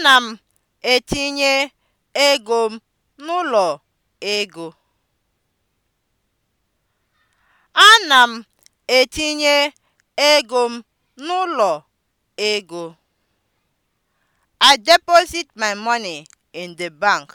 Ana m etinye ego m n'ụlọ ego. I deposit my money in the bank.